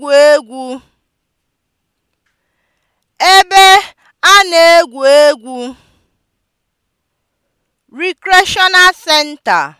egwu egwu ebe a na-egwu egwu (recreational center)